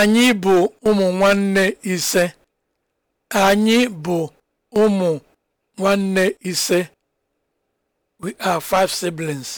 Anyị bụ ụmụ nwanne ise. Anyị bụ ụmụ nwanne ise. We are five siblings.